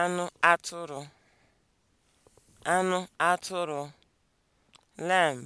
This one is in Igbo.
anụ atụrụ anụ atụrụ lamb